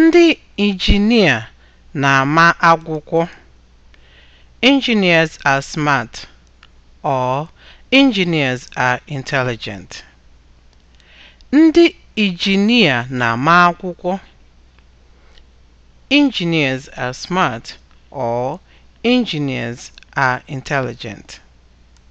Ndị injinia na-ama akwụkwọ (engineers are smart or engineers are intelligent). na-ama akwụkwọ (engineers are smart or engineers are intelligent).